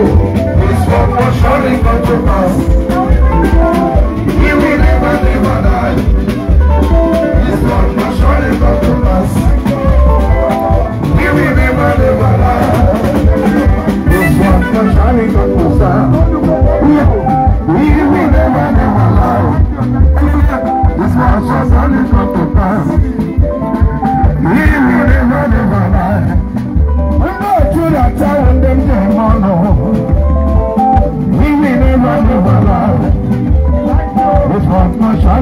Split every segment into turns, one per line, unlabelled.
It's one more shot in front of He will never, never die.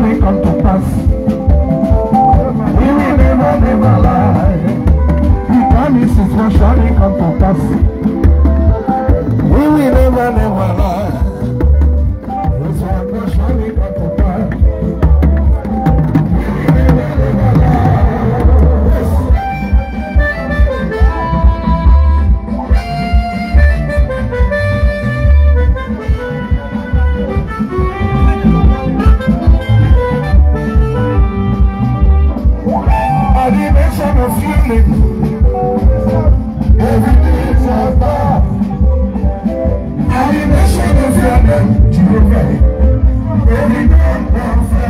shall come to pass. He will never, never lie. He promises, what shall it come to pass? Motivation of feeling. Everything is above. of feeling. Everything is above.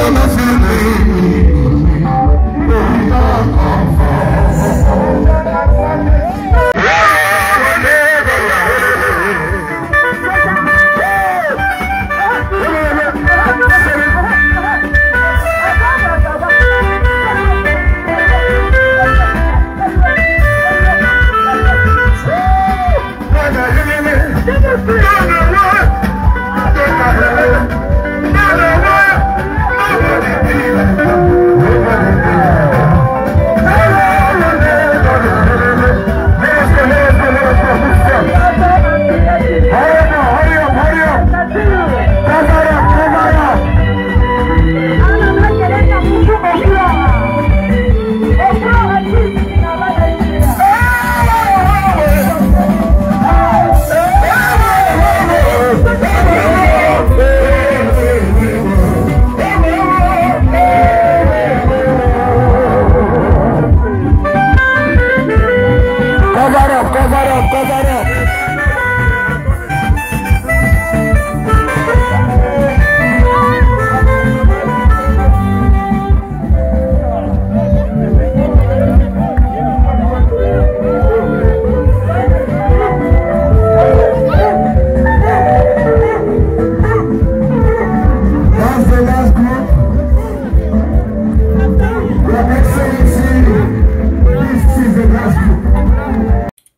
son of your